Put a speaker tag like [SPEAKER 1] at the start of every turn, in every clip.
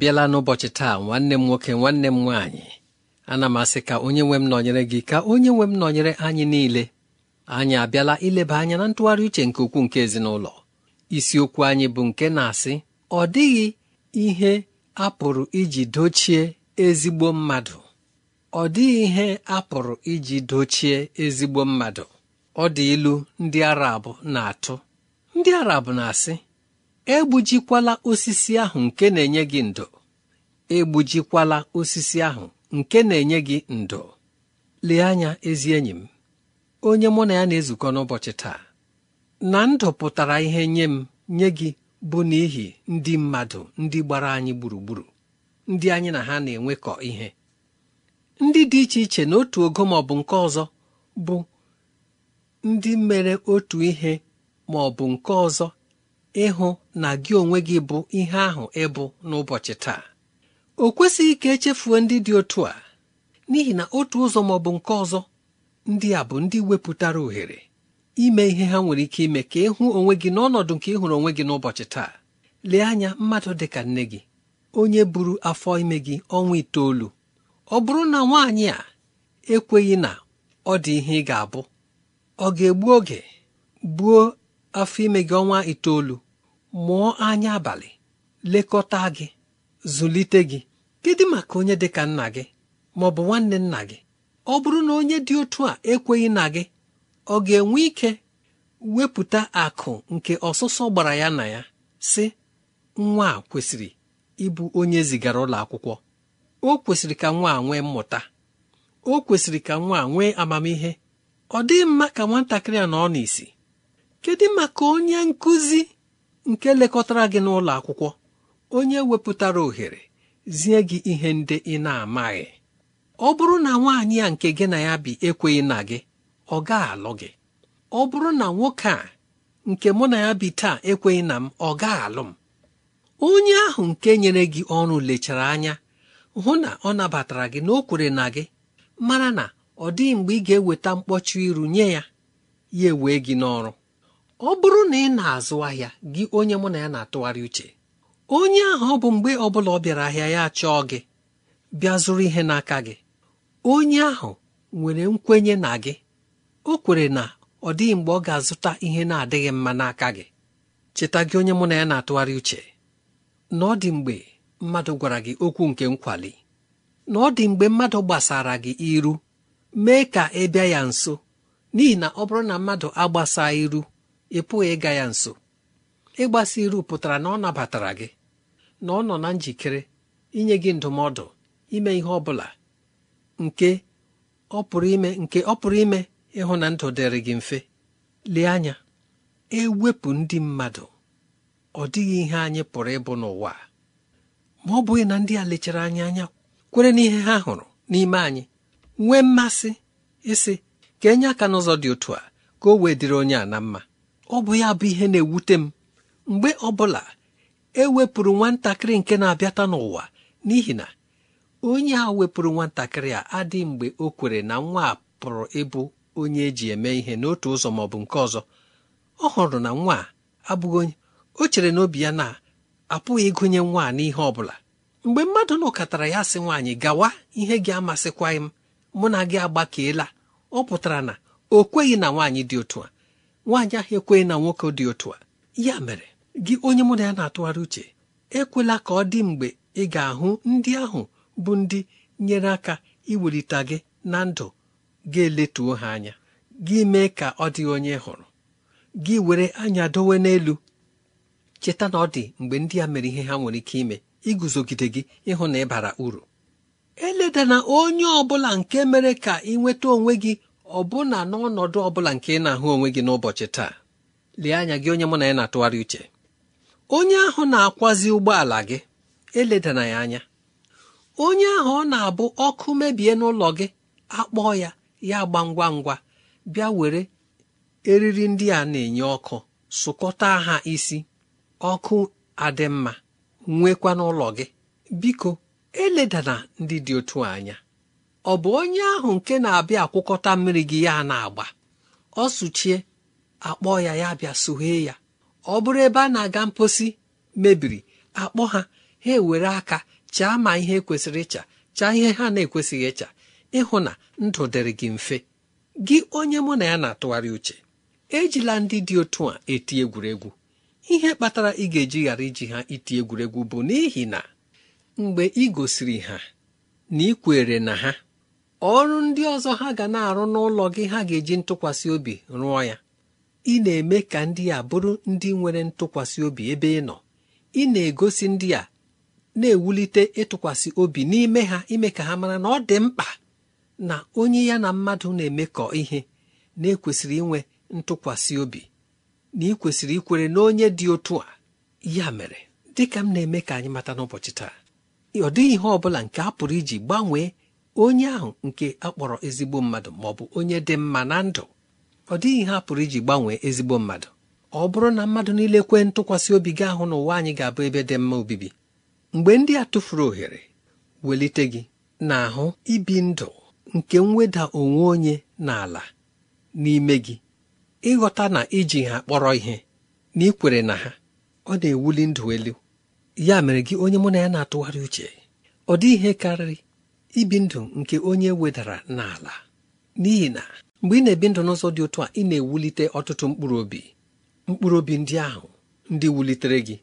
[SPEAKER 1] bịala n'ụbọchị taa nwanne m nwoke nwanne m nwaanyị ana m asị ka onye nwe m nọnyere gị ka onye nwe m nọnyere anyị niile anyị abịala ileba anya na ntụgharị uche nke ukwuu nke ezinụlọ isiokwu anyị bụ nke na-asị ọ dịghị ihe a pụrụ iji dochie ezigbo mmadụ ọ dịghị ihe a pụrụ iji dochie ezigbo mmadụ ọ dị ilu ndị Arab na-atụ ndị Arab na-asị egbujikwala osisi ahụ nke na-enye gị ndo egbujikwala osisi ahụ nke na-enye gị ndo lee anya ezi enyi m onye mụ na ya na-ezukọ n'ụbọchị taa na ndụ pụtara ihe nye m nye gị bụ n'ihi ndị mmadụ ndị gbara anyị gburugburu ndị anyị na ha na-enwekọ ihe ndị dị iche iche n'otu ogo ma ọ bụ nke ọzọ bụ ndị mere otu ihe ma ọ bụ nke ọzọ ịhụ na gị onwe gị bụ ihe ahụ ịbụ n'ụbọchị taa o kwesịghị ka echefuo ndị dị otu a n'ihi na otu ụzọ ma ọ bụ nke ọzọ ndị a bụ ndị wepụtara ohere ime ihe ha nwere ike ime ka ịhụ onwe gị n'ọnọdụ nke ịhụrụ onwe gị n'ụbọchị taa lee anya mmadụ dị ka nne gị onye buru afọ ime gị ọnwa itoolu ọ bụrụ na nwaanyị a ekweghị na ọ dị ihe ị ga-abụ ọ ga-egbu oge gbuo afọ ime gị ọnwa itoolu mụọ anya abalị lekọta gị zụlite gị kedu maka onye dị ka nna gị ma ọ bụ nwanne nna gị ọ bụrụ na onye dị otu a ekweghị na gị ọ ga-enwe ike wepụta akụ nke ọsụsọ gbara ya na ya si nwa a kwesịrị ịbụ onye zigara ụlọ akwụkwọ o kwesịrị ka nwa nwee mmụta o kwesịrị ka nwa nwee amamihe ọ dịghị mma ka nwatakịrị a nọ n'isi kedu maka onye nkụzi nke lekọtara gị n'ụlọ akwụkwọ onye wepụtara ohere zie gị ihe ndị ị na-amaghị ọ bụrụ na nwaanyị a nke gị na ya bi ekweghị na gị ọ ga-alụ gị ọ bụrụ na nwoke a nke mụ na ya bi taa ekweghị na m ọ gaa alụ m onye ahụ nke nyere gị ọrụ lechara anya hụ na ọ nabatara gị na o kwere na gị mara na ọ dịghị mgbe ị ga-eweta mkpọchi iru nye ya ya ewee gị n'ọrụ ọ bụrụ na ị na-azụ ahịa gị onye mụ na ya na-atụgharị uche onye ahụ ọ bụ mgbe ọ bụla ọ bịara ahịa ya chọọ gị bịa zụrụ ihe n'aka gị onye ahụ nwere nkwenye na gị o kwere na ọ dịghị mgbe ọ ga-azụta ihe na-adịghị mma n'aka gị cheta gị onye mụ na ya na-atụgharị uche na ọ dị mgbe mmadụ gwara gị okwu nke nkwali na ọ dị mgbe mmadụ gbasara gị iru mee ka ị bịa ya nso n'ihi na ọ bụrụ na mmadụ agbasaa iru ị pụghị ịga ya nso ịgbasi iru pụtara na ọ nabatara gị na ọ nọ na njikere inye gị ndụmọdụ ime ihe ọ bụla nke ọ pụrụ ime nke ọ pụrụ ime ịhụ na ndụ dịrị gị mfe lee anya ewepụ ndị mmadụ ọ dịghị ihe anyị pụrụ ịbụ n'ụwa ma ọ bụghị na ndị a lechara anyị anya kwere n'ihe ha hụrụ n'ime anyị nwee mmasị ịsị ka enye aka n'ụzọ dị otu a ka o wee dịrị onye a na mma ọ bụ ya bụ ihe na-ewute m mgbe ọbụla e wepụrụ nwatakịrị nke na-abịata n'ụwa n'ihi na onye a wepụrụ nwatakịrị a adịghị mgbe o kwere na nwa a pụrụ ịbụ onye eji eme ihe n'otu ụzọ ma ọ bụ nke ọzọ ọ hụrụ na nwa a abụghị onye o chere obi ya na apụghị ịgụnye nwa a n'ihe ọ bụla mgbe mmadụ nọkọtara ya sị nwaanyị gawa ihe gị amasịkwaghị m mụ na gị agbakeela ọ pụtara na o kweghị na nwaanyị dị otu a nwaanyị ahụ ekweghị na nwoke dị otu a ya mere gị onye mụ na ya na-atụgharị uche ekwela ka ọ dị mgbe ị ga-ahụ ndị ahụ bụ ndị nyere aka iwelite gị na ndụ ga-eletuo ha anya gị mee ka ọ dị onye hụrụ gị were anya dowe n'elu cheta na ọ dị mgbe ndị a mere ihe ha nwere ike ime iguzogide gị ịhụ na ịbara uru eledana onye ọ bụla nke mere ka ị nweta onwe gị ọbụna n'ọnọdụ ọbụla nke ị na-ahụ onwe gị n'ụbọchị taa lee anya gị onye mụ na ya na-atụgharị uche onye ahụ na-akwazi ụgbọala gị eledana ya anya onye ahụ ọ na-abụ ọkụ mebie n'ụlọ gị akpọọ ya ya gba ngwa ngwa bịa were eriri ndị a na-enye ọkụ sụkọta ha isi ọkụ adị mma nwekwa n'ụlọ gị biko eledana ndị dị otu anya ọ bụ onye ahụ nke na-abịa akwụkọta mmiri gị ya na-agba ọ sụchie akpọ ya ya bịa soghee ya ọ bụrụ ebe a na-aga mposi mebiri akpọ ha ha ewere aka chaa ma ihe ekwesịrị ịcha chaa ihe ha na-ekwesịghị ịcha ịhụ na ndụ dịrị gị mfe gị onye mụ na ya na-atụgharị uche ejila ndị dị otu a eti egwuregwu ihe kpatara ị ga-eji ghara iji ha iti egwuregwu bụ n'ihi na mgbe ị gosiri ha na ị kwere na ha ọrụ ndị ọzọ ha ga na-arụ n'ụlọ gị ha ga-eji ntụkwasị obi rụọ ya ị na-eme ka ndị a bụrụ ndị nwere ntụkwasị obi ebe ị nọ ị na-egosi ndị a na-ewulite ịtụkwasị obi n'ime ha ime ka ha mara na ọ dị mkpa na onye ya na mmadụ na-emekọ ihe na-ekwesịrị inwe ntụkwasị obi na ị kwesịrị ikwere na onye dị otu a ya mere dịka m na-eme ka anyị mata n'ụbọchị taa ọ dịghị ihe ọ bụla nke a pụrụ iji gbanwee onye ahụ nke akpọrọ ezigbo mmadụ ma ọ bụ onye dị mma na ndụ ọ dịghị a pụrụ iji gbanwee ezigbo mmadụ ọ bụrụ na mmadụ niile kwee ntụkwasị obi gị ahụ n'ụwa anyị ga-abụ ebe dị mma obibi mgbe ndị a tụfuru ohere welite gị na-ahụ ibi ndụ nke mweda onwe onye n'ala n'ime gị ịghọta na iji ha kpọrọ ihe na ikwere na ha ọ na-ewuli ndụ elu ya mere gị onye mụ na ya na-atụgharị uche ọ dị ihe karịrị ibi ndụ nke onye wedara n'ala n'ihi na mgbe ị na-ebi ndụ n'ụzọ dị otu a ị na-ewulite ọtụtụ mkpụrụ obi mkpụrụ obi ndị ahụ ndị wulitere gị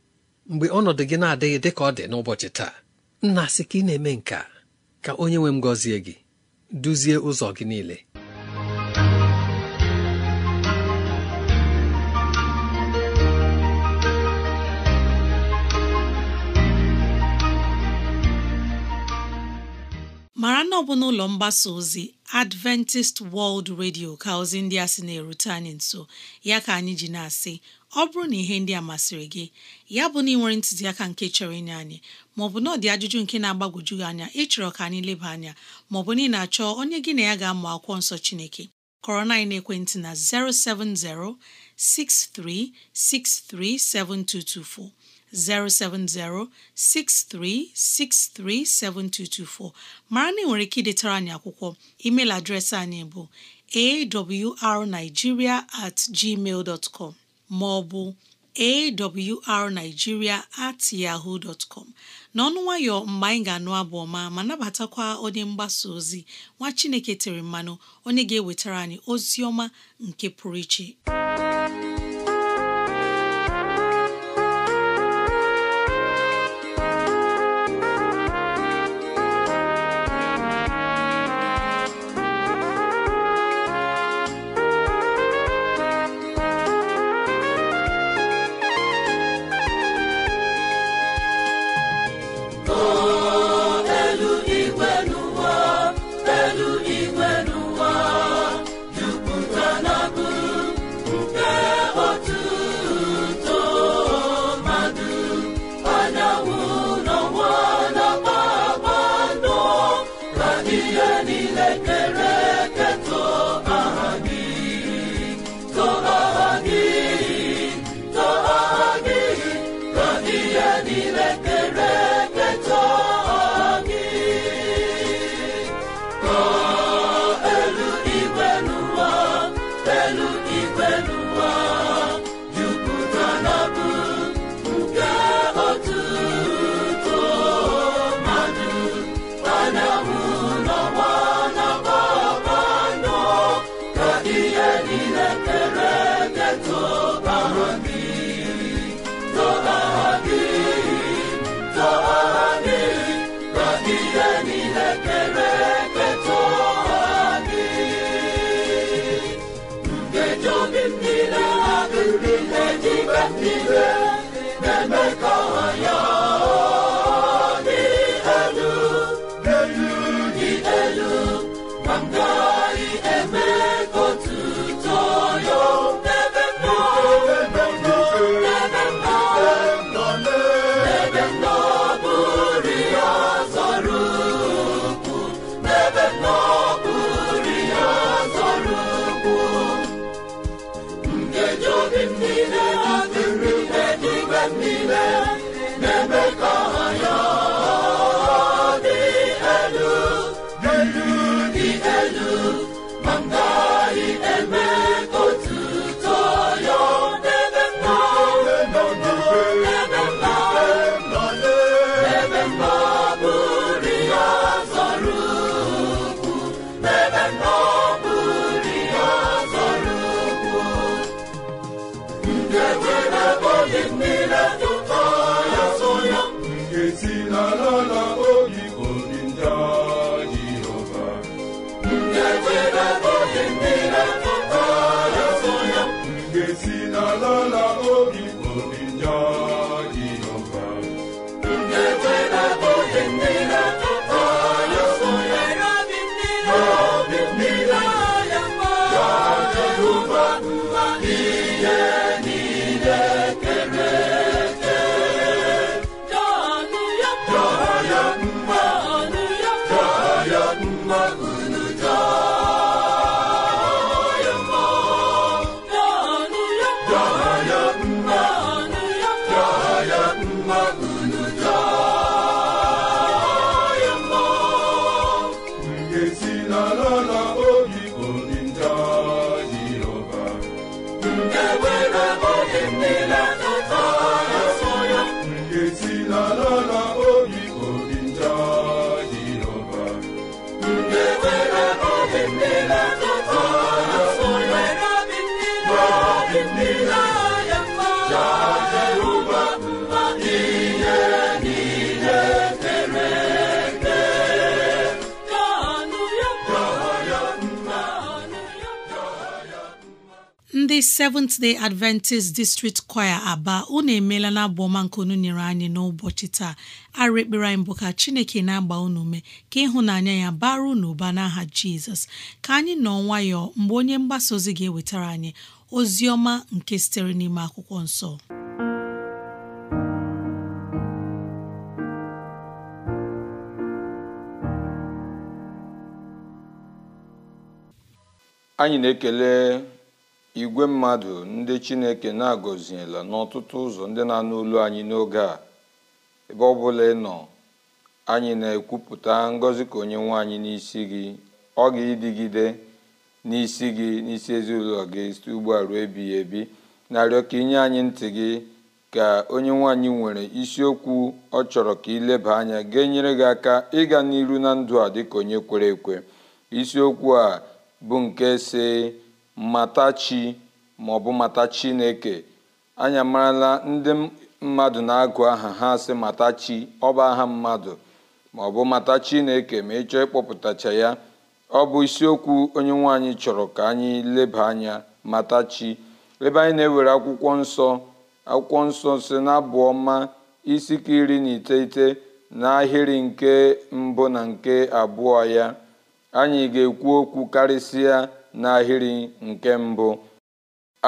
[SPEAKER 1] mgbe ọnọdụ gị na-adịghị dị ka ọ dị n'ụbọchị taa nna sị ka ị na-eme nka ka onye nwe m gọzie gị duzie ụzọ gị niile
[SPEAKER 2] mara na ọ bụ n'ụlọ mgbasa ozi Adventist World Radio ka ozi ndị a sị na-erute anyị nso ya ka anyị ji na-asị ọ bụrụ na ihe ndị a masịrị gị ya bụ na ị nwere ntụziaka nke chọrọ ịnye anyị maọbụ na ọ dị ajụjụ nke na-agbagwoju gị anya ịchọrọ ka anyị leba anya maọbụ na ị na-achọ onye gị na ya ga-amụ akwụkwọ nsọ Chineke kọrọ na ekwentị na 070 6363 7224 07063637224 mara na ị nwere ike idetara anyị akwụkwọ email adreesị anyị bụ arigiria at gmail dot com maọbụ awrnigeria at yahoo dot com n'ọnụ nwayọ mgbe anyị ga-anụ abụ ọma ma nabatakwa onye mgbasa ozi nwa Chineke tere mmanụ onye ga-ewetara anyị ozi ọma nke pụrụ iche ndị Seventh Day Adventist District Choir Aba unu emeela na abụ ọma nke unu nyere anyị n'ụbọchị taa arụ ekpere anyị bụ ka Chineke na-agba unu ume ka ịhụnanya ya bara unu ụba n'aha Jizọs ka anyị nọ nwayọọ mgbe onye mgbasa ozi ga-ewetara anyị ozi ọma nke sitere n'ime akwụkwọ nsọ
[SPEAKER 3] anyị na-ekele igwe mmadụ ndị chineke na agoziela n'ọtụtụ ụzọ ndị na-anụ olu anyị n'oge a ebe ọ bụla ị nọ anyị na-ekwupụta ngọzi ka onye nwe anyị n'isi gị ọ ga-ịdịgide n'isi gị n'isi ezinụlọ gị site ugbu a ruo ebighị ebi narịọ ka inye anyị ntị gị ka onye nwaanyị nwere isiokwu ọ chọrọ ka ileba anya ga-enyere gị aka ịga n'iru na ndụ a dịka onye kwere ekwe isiokwu a bụ nke si mmata chi maọbụ mmata chineke anyị amarala ndị mmadụ na-agụ aha ha sị mata chi aha mmadụ maọbụ mata chineke ma ịchọọ ịkpọpụtacha ya ọ bụ isiokwu onye nwanyị chọrọ ka anyị leba anya mata chi ebe anyị na-ewere akwụkwọ nsọ akwụkwọ nsọ si na ọma isi ka iri na iteghete ahịrị nke mbụ na nke abụọ ya anyị ga-ekwu okwu karịsịa n'ahịrị nke mbụ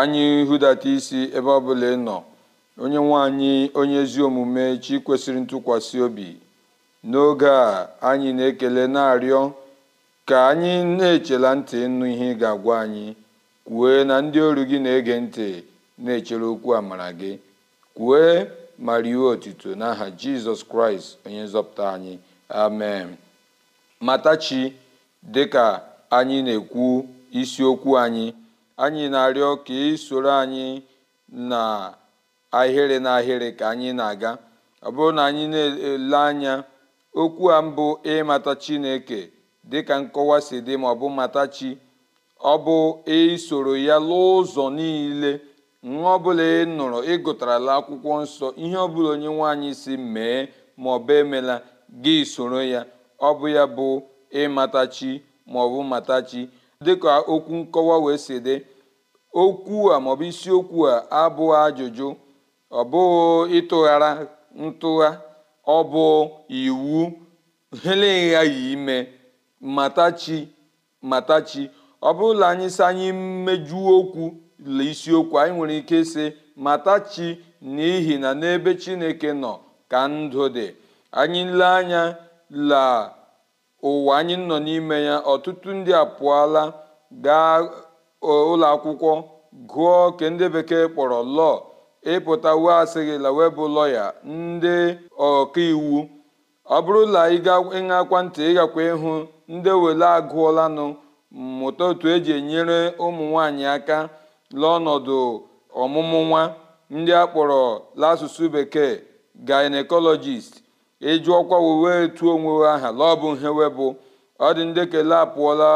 [SPEAKER 3] anyị hụdata isi ebe ọbụla ị nọ onye nwaanyị onye ezi omume chi kwesịrị ntụkwasị obi n'oge a anyị na-ekele na-arịọ ka anyị na-echela ntị ịnụ ihe ị ga-agwa anyị kwue na ndị oru gị na-ege ntị na-echere okwu amara gị kwue ma rie otuto n'aha jizọs kraịst onye nzọpụta anyị amen matachi dịka anyị na-ekwu isiokwu anyị anyị na-arịọ ka ị soro anyị na ahịrị na ahịrị ka anyị na-aga ọ bụrụ na anyị na-ele anya okwu a mbụ ịmata chineke dịka nkọwa si dị ma ọ bụ mata chi ọ bụ isoro ya n'ụzọ ụzọ niile nwa ọbụla ị nụrụ ị akwụkwọ nsọ ihe ọbụla onye nwaanyị si mee ma ọ bụ emela gị soro ya ọ bụ ya bụ ịmata chi maọbụ matachi. mata chi dịka okwu nkọwa wee si dị okwu a maọbụ isiokwu a abụghị ajụjụ ọ bụghị ịtụghara ntụgha ọ bụ iwu helegha yi ime matachi matachi ọ bụrụla anyị si anyị mejuo okwu le isiokwu anyị nwere ike ịsị matachi n'ihi na n'ebe chineke nọ ka ndụ dị anyị lee anya laa ụwa anyị nọ n'ime ya ọtụtụ ndị apụọla gaa e, ụlọ akwụkwọ gụọ nke ndị bekee kpọrọ lọọ ịpụta wee asịghịla wee bụ lọya ndị ọkaiwu ọ bụrụ bụrụla ịṅakwa ntị ịgakwa ịhụ ndị wele agụọlanụ mmụta otu eji enyere ụmụ nwanyị aka n'ọnọdụ ọmụmụ nwa ndị a kpọrọ bekee gynecologist ọkwa wee tuo onwe aha la bụ nhewe bụ ọ dị ndị kele apụọla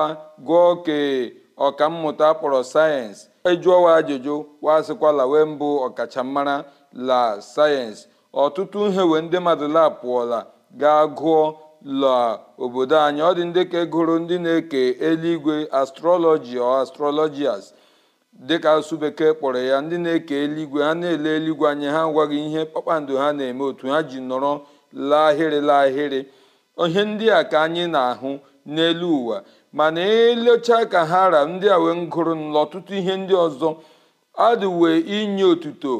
[SPEAKER 3] gụọ kee ọkammụta kpọrọ sayensị ejụọwa ajụjụ wasịkwala wee mbụ ọkachammara la sayensị ọtụtụ nhewe ndị mmadụ la pụọla gaa gụọ la obodo anyị ọ dị ndị ka gụrụ ndị na-eke eluigwe astrọlọji ọ astrọlọjias dịka asụ bekee kpọrọ ya ndị na-eke eluigwe ha na-ele eluigwe anya ha gwaghị ihe kpakpando ha na-eme otu ha ji nọrọ lahịrị lahịrị ihe ndị a ka anyị na-ahụ n'elu ụwa mana elechaa ka ha ra ndị a wee gụrụ n'ọtụtụ ihe ndị ọzọ adịwe inye otuto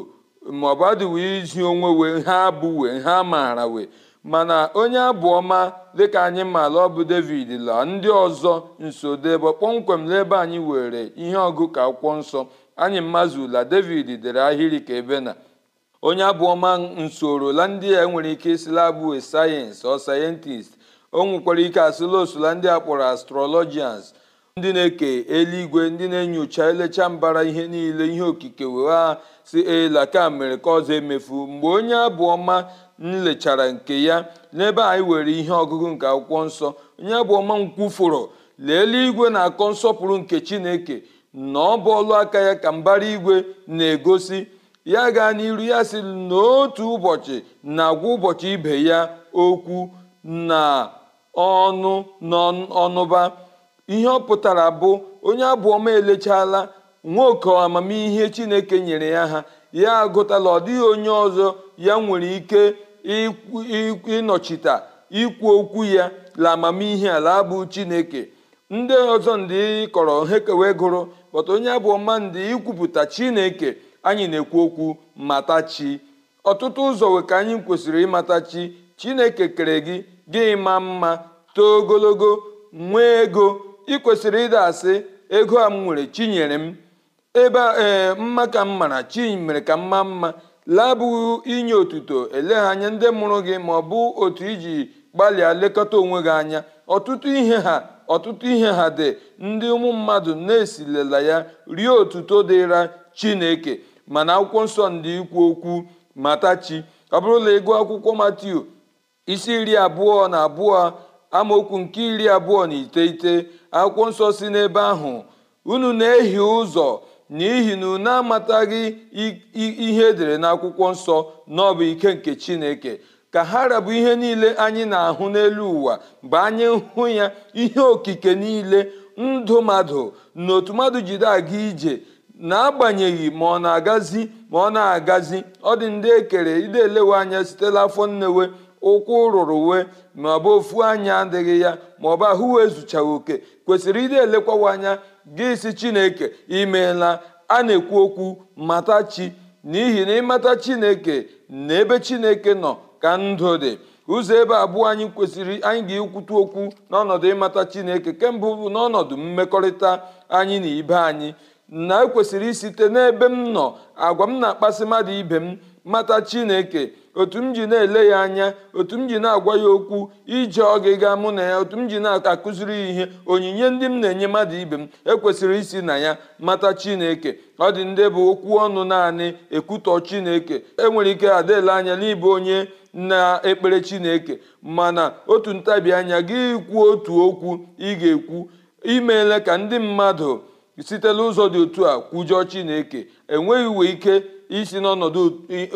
[SPEAKER 3] maọbụ adịwe izi onwe wee ha abụwe ha maara wee mana onye abụ ọma dịka anyị maara ọ bụ david la ndị ọzọ nso debe kpọmkwem n'ebe anyị were ihe ọgụ ka akwụkwọ nsọ anyị ula david dere ahịrị ka ebe na onye abụọma nsorola ndị a nwere ike isila bụ sayensị ọ sayentist o nwekwara ike asụla osula ndị a kpọrọ astrologians ndị na-eke eluigwe ndị na-enyocha elecha mbara ihe niile ihe okike wee ha si elaka mere ka ọzọ emefu mgbe onye abụọma nlechara nke ya n'ebe anyị were ihe ọgụgụ nke akwụkwọ nsọ onye abụọma nkwufụrụ lee eluigwe na-akọ nsọpụrụ nke chineke na ọ bọọlụ aka ya ka mbara igwe na-egosi ya gaa n'iru ya si n'otu ụbọchị na-agwa ụbọchị ibe ya okwu na ọnụ n'ọnụba ihe ọ pụtara bụ onye abụọma elechala nwoke amamihe chineke nyere ya ha ya agụtala ọ dịghị onye ọzọ ya nwere ike ịnọchite ikwu okwu ya la amamihe ala bụ chineke ndị ọzọ ndị kọrọ ha kewe gụrụ pọta onye abụọma ndị ikwupụta chineke anyị na-ekwu okwu mata chi ọtụtụ ụzọ we ka anyị kwesịrị ịmata chi chineke kere gị gị ma mma too ogologo nwee ego ị kwesịrị ịda asị ego a m nwere chi nyere m ebe ee mma ka m mara chi mere ka m maa mma labụghị inye otuto eleghị anya ndị mụrụ gị ma ọ bụ otu iji gbalịa lekọta onwe gị anya ọtụtụ ihe ha ọtụtụ ihe ha dị ndị ụmụ mmadụ na-esilela ya rie otuto dịra chineke mana akwụkwọ nsọ ndị ikwu okwu matachi ọ bụrụ na ego akwụkwọ matiu isi iri abụọ na abụọ amaokwu nke iri abụọ na iteghete akwụkwọ nsọ si n'ebe ahụ unu na-ehi ụzọ n'ihi na unu amataghị ihe edere na akwụkwọ nsọ na ọbụ ike nke chineke ka ha rabụ ihe niile anyị na-ahụ n'elu ụwa mgbe anyị hụ ya ihe okike niile ndụ mmadụ na otu mmadụ jide aga ije n'agbanyeghị ma ọ na-agazi ma ọ na-agazi ọ dị ndị ekere ide elewe anya sitela afọ nnewe ụkwụ rụrụ we ma ọ bụ ofu anya adịghị ya ma ọ bụ ahụ wee zuchaghị oke kwesịrị ide elekwawa anya gị si chineke imeela a na-ekwu okwu mata chi n'ihi na ịmata chineke na ebe chineke nọ ka ndụ dị ụzọ ebe abụọ anyị kwesịrị anyị ga ekwutu okwu n'ọnọdụ ịmata chineke kemgbe bụ n'ọnọdụ mmekọrịta anyị na ibe anyị na ekwesịrị site n'ebe m nọ agwa m na-akpasị mmadụ ibe m mata chineke otu m ji na-ele ya anya otu m ji na-agwa ya okwu ije ọgịga mụ na ya otu m ji na-akụziri ya ihe onyinye ndị m na-enye mmadụ ibe m ekwesịrị isi na ya mata chineke ọ dị ndị bụ okwu ọnụ naanị ekwutọ chineke enwere ike adịla anya n'ịbụ onye na-ekpere chineke mana otu ntabi anya gị kwuo otu okwu ị ga-ekwu imeela ka ndị mmadụ site n'ụzọ dị otu a kwujọọ chineke enweghị uwe ike isi n'ọnọdụ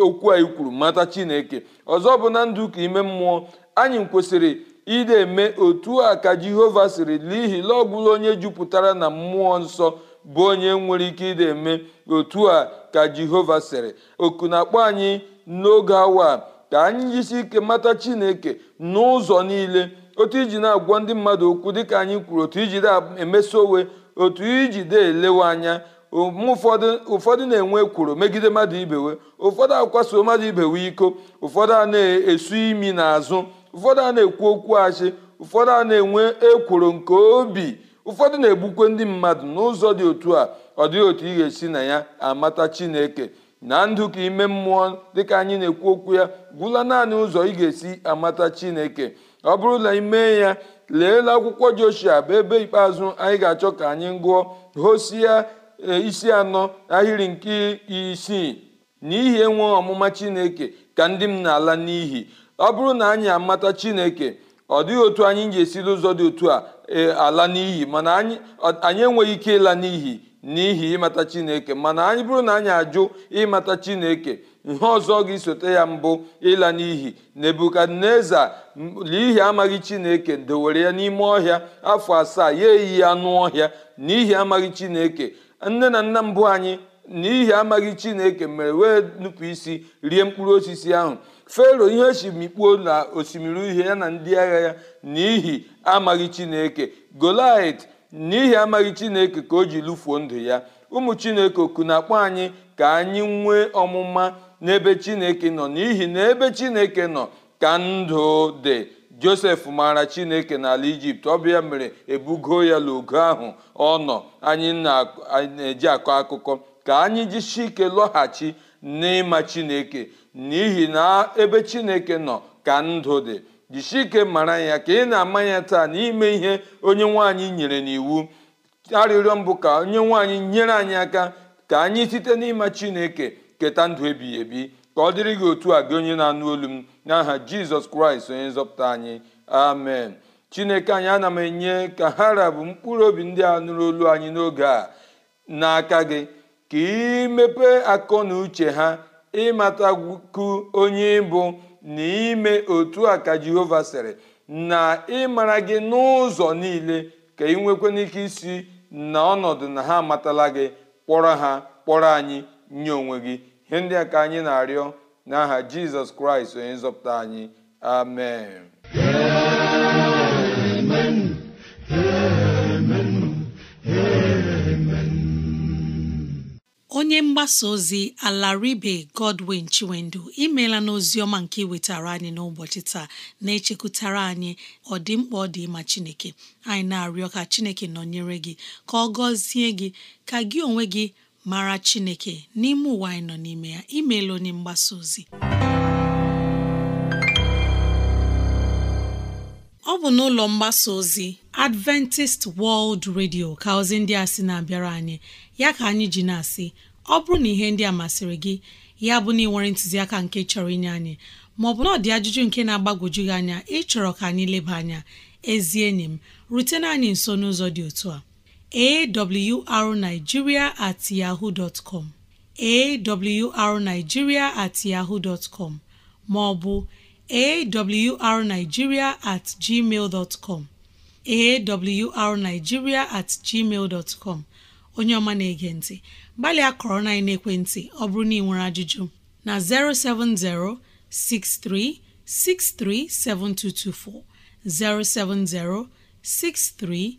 [SPEAKER 3] okwu a ikwuru mata chineke ọzọ bụ na ndụ ka ime mmụọ anyị kwesịrị ịdị eme otu a ka jehova siri n'ihi na ọ onye jupụtara na mmụọ nsọ bụ onye nwere ike ịdị eme otu a ka jehova siri oku na-akpọ anyị n'oge awa ka anyị jisi ike mata chineke n'ụzọ niile otu iji na-agwa ndị mmadụ okwu dịka anyị kwuru otu iji na-emeso otu iji de elewe anya ụfọdụ ụfọdụ na-enwe ekworo megide mmadụ ibewe ụfọdụ akwaso mmadụ ibewe iko ụfọdụ a na-esu imi n'azụ ụfọdụ a na-ekwu okwu achị ụfọdụ a na-enwe ekworo nke obi ụfọdụ na-egbukwe ndị mmadụ n'ụzọ dị otu a ọ dịghị otu ị ga-esi na ya amata chineke na ndụ ka ime mmụọ dịka anyị na-ekwu okwu ya gwụla naanị ụzọ ị ga-esi amata chineke ọ bụrụ na ime ya leela akwụkwọ joshua bụ ebe ikpeazụ anyị ga-achọ ka anyị gụọ hosia e, isi anọ ahịrị nke isii n'ihi enwe ọmụma chineke ka ndị m na-ala n'ihi ọ bụrụ na anyị amata chineke ọ dịghị otu anyị ji esiri ụzọ dị otu a e, ala n'ihi mana anyị enweghị ike ịla n'ihi n'ihi ịmata chineke mana anyị bụrụ na anyị ajụ ịmata chineke ihe ọzọ ga-esote ya mbụ ịla n'ihi naebukadneza n'ihi amaghị chineke dowere ya n'ime ọhịa afọ asaa ya eyi ya anụ ọhịa n'ihi amaghị chineke nne na nna mbụ anyị n'ihi amaghị chineke mere wee nupụ isi rie mkpụrụ osisi ahụ fero ihe mikpuo na osimiri uhie ya na ndị agha ya n'ihi amaghị chineke golit n'ihi amaghị chineke ka o ji lụfuo ndụ ya ụmụ chineke oku na-akpọ anyị ka anyị nwee ọmụma n'ebe chineke nọ n'ihi na ebe chineke nọ ka ndụ dị josef maara chineke n'ala ijipt ọbịa mere ebugo ya n'ogo ahụ ọ nọ anyị na-eji akọ akụkọ ka anyị jisi ike lọghachi n'ịma chineke n'ihi na ebe chineke nọ ka ndụ dị jisi ike mara ya ka ị na-ama ya taa n'ime ihe onye nwaanyị nyere n'iwu arịrịọ mbụ ka onye nwaanyị nyere anyị aka ka anyị site n'ịma chineke keta ndụ ebighị ebi ka ọ dịrị gị otu a gị onye na-anụ olu m n'aha jizọs kraịst onye nzọpụta anyị amen chineke anyị ana m enye ka ha rabụ mkpụrụ obi ndị a nụrụ olu anyị n'oge a n'aka gị ka imepe akọ na uche ha ịmatakwu onye bụ na ime otu a ka jehova sịrị na ịmara gị n'ụzọ niile ka ị nwekwana ike isi na ọnọdụ na ha amatala gị kpọrọ ha kpọrọ anyị nye onwe gị ihe ndị a ka anyị na-arịọ n'aha jizọs kraịst onye nzọpụta anyị amen
[SPEAKER 2] onye mgbasa ozi alaribe godwin chiwendu imela n'ozi ọma nke iwetara anyị n'ụbọchị taa na-echekwutara anyị ọdịmkpa ọ dị ịma chineke anyị na-arịọ ka chineke nọnyere gị ka ọ gọzie gị ka gị onwe gị mara chineke n'ime ụwa anyị nọ n'ime ya imeela onye mgbasa ozi ọ bụ n'ụlọ mgbasa ozi Adventist World Radio ka ozi ndị a sị na-abịara anyị ya ka anyị ji na-asị ọ bụrụ na ihe ndị a masịrị gị ya bụ na ị nwere ntụziaka nke chọrọ inye anyị maọbụ na ọ dị ajụjụ nke na-agbagwoju anya ịchọrọ ka anyị leba anya ezi enyi m rutena anyị nso n'ụzọ dị otu a awrnigeria at yahoo dot com awrnigeria at yahoo dot com maọbụ awrnigeria at gmail dot com awrnigeria at gmail dot com onye ọma na-ege ntị gbalịa kọrọ na ekwentị ọ bụrụ na ị nwere ajụjụ na 070 6363 7224 070 63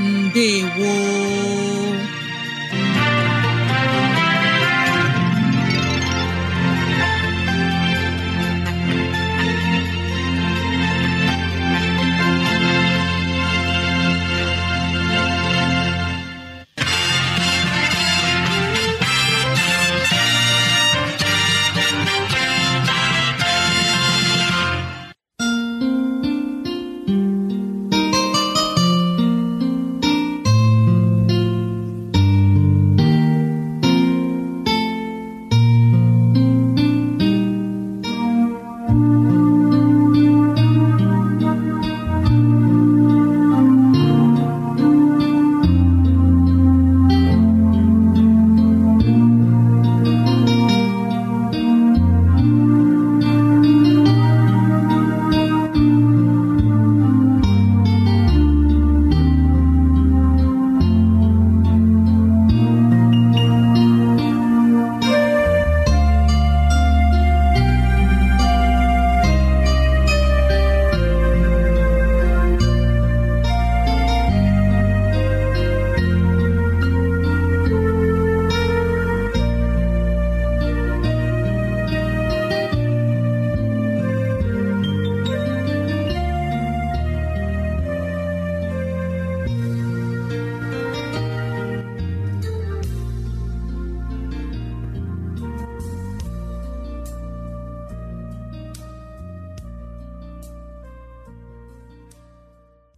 [SPEAKER 2] ndewo